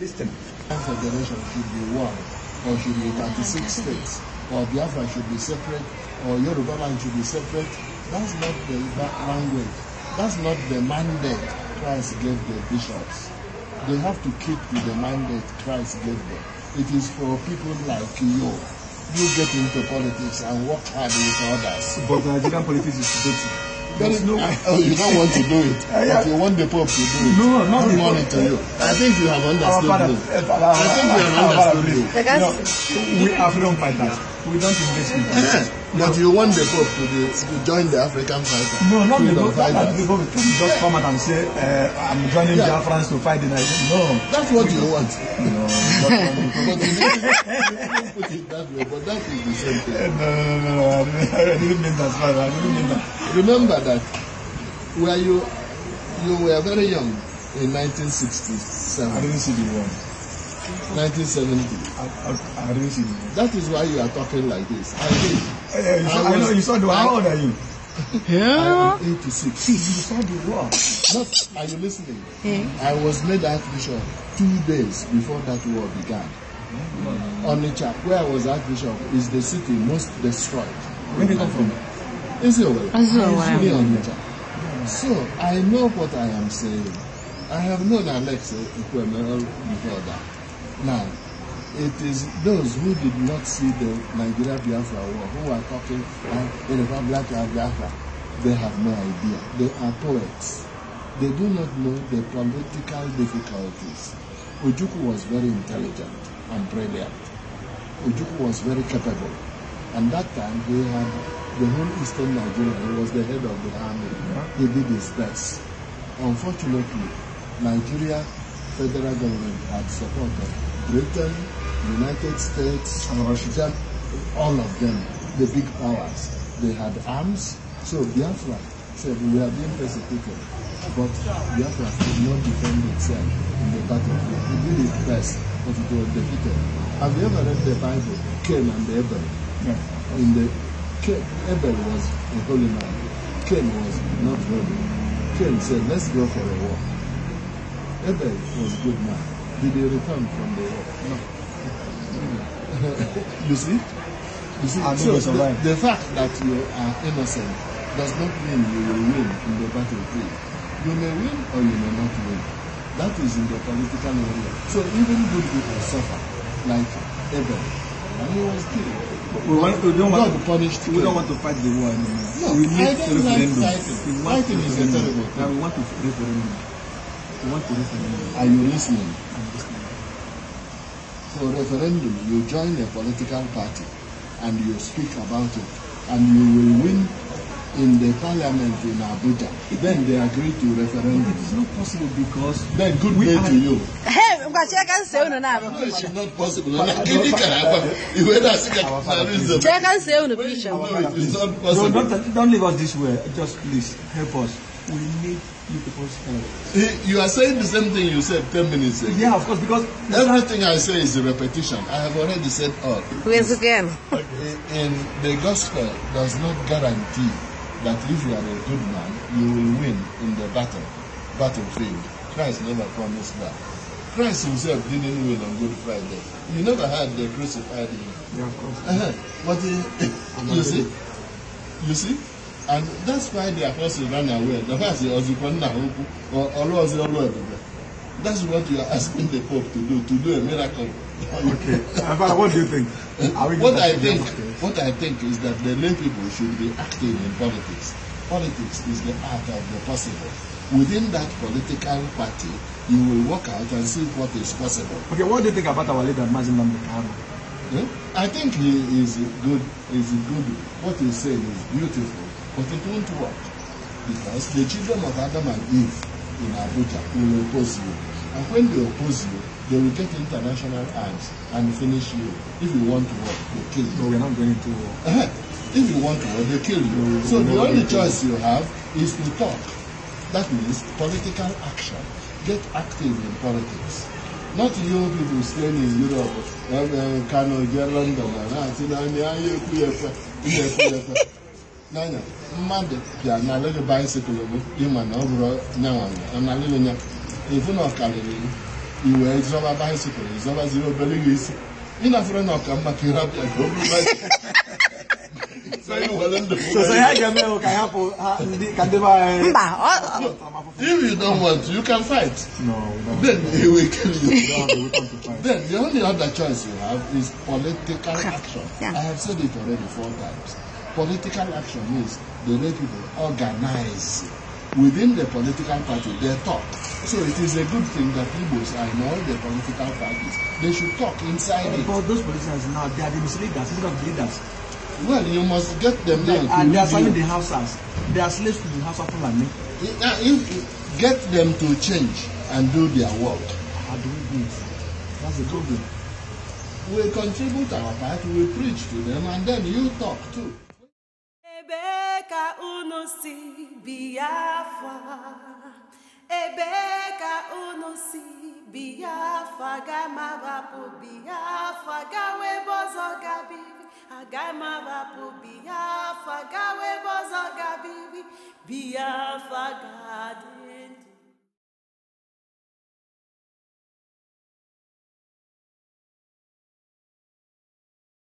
Listen. Federation should be one, or should be 36 states, or Biafra should be separate, or Yoruba land should be separate. That's not the language. That's not the mandate Christ gave the bishops. They have to keep to the mandate Christ gave them. It is for people like you. You get into politics and work hard with others. But Nigerian politics is dirty. There is no. Oh, you don't want to do it, but you want the Pope to do it. No, not the money to you. I think you have understood me. Eh, I think you have understood me. No, we are freedom fighters. We don't invest. in politics. But you want the Pope to, the, to join the African fighters. No, not the cup. That Pope can just come out and say, uh, I'm joining yeah. Biafrans to fight the Nigerians. No. That's what you want. No. but you didn't put it that way, but that is the same thing. No, no, no. I didn't mean that. I didn't mean that. Remember that where you, you were very young in 1967. I didn't see the war. 1970. I, I, I didn't see you. That is why you are talking like this. I did. Uh, eh, eh, you, saw, know, you saw the war. How old are you? Yeah. I 86. you saw the war. Not, are you listening? Yeah. I was made Archbishop two days before that war began. mm the chap where I was Archbishop, is the city most destroyed. Where did you come from? Israel. Israel. Isiowele. Isiowele. Onitsha. So I know what I am saying. I have known Alex Ikwemero before that. Now, it is those who did not see the Nigeria Biafra war who are talking about uh, the black and Biafra. They have no idea. They are poets. They do not know the political difficulties. Ujuku was very intelligent and brilliant. Ujuku was very capable. And that time he had the whole eastern Nigeria. He was the head of the army. He did his best. Unfortunately, Nigeria federal government had supported Britain, United States, and Russia, all of them, the big powers, they had arms. So Biafra said, we are being persecuted. But Biafra could not defend itself in the battlefield. It did its best, but it was defeated. Have you ever read the Bible, Cain and Abel? Yeah. In the, Abel was a holy man. Cain was not holy. Cain said, let's go for a walk. Abel was a good man. Did they return from the war? No. you see? You see? And so the, the fact that you are innocent does not mean you will win in the battlefield. You may win or you may not win. That is in the political area. So even good people suffer, like Abel, and he was killed. We, want, we don't want to punished we don't want to fight the war anymore. No, we need I don't referendum. Like fighting. fighting is a terrible thing. we want to referendum want to listen. Are you listening? I'm listening. So referendum, you join a political party and you speak about it and you will win in the parliament in Abuja. Then they agree to referendum. it is not possible because then good day to you. Hey, no, it's not possible. But, but, it can happen. Even as it can, there is a. No, it is not possible. don't leave us this way. Just please help us. you people's eh, You are saying the same thing you said 10 minutes ago. Yeah, of course, because... Everything I say is a repetition. I have already said all. Please again. And the gospel does not guarantee that if you are a good man, you will win in the battle, battlefield. Christ never promised that. Christ himself didn't win on Good Friday. You never had the crucified him. Yeah, of course. Uh -huh. But uh, you see, you see, and that's why the apostle ran away the fact is ọzụkwanna okwu ọlụọzi ọlụ ebube that's what you are asking the pope to do to do a miracle. okay Abba, what do you think. what i think what i think is that the lay people should be active in politics politics is the art of the possible within that political party you will work out and see what is possible. okay what do you think about our leader Mazin Nnamdi Kanu. Eh? I think he is good He is good what he said is beautiful but we don't work because the children of Adam and Eve in Abuja will oppose you. And when they oppose you, they will get international eyes and finish you. If you want to work, they kill you. No, we're not going to work. Uh-huh. If you want to work, they kill you. No, so the only choice you have is to talk. That means political action. Get active in politics. Not you people staying in Europe, uh, Kano, London, and that n'anya mmadụ bịa n'alụghị baisikụl gị ịma na ọ bụrụ nyanwa n'alụghị nya ifu na ọkarịrị i wee zọba baisikụl zọbaziri obere gị isi ị na na ọka mma ka ị rapịa ka eh. o bụrụ If you don't want you can fight. No, Then they will kill you. then the only other choice you have is political action. Yeah. I have said it already four times political action means the way people organize within the political party they talk so it is a good thing that Igbos are in all the political parties they should talk inside but it. but those politicians now they are the misleaders instead of leaders. well you must get them now they, to and they are serving the houses they are slaves to the house of fulani. get them to change and do their work. how do we do it that's the problem. we contribute our part we preach to them and then you talk too. si Biafra ebe ka unu si Biafra gamabapụ Biafra gawa ebe ọzọ gabiri agamabapụ Biafra gawa ebe ọzọ gabiri Biafra gadị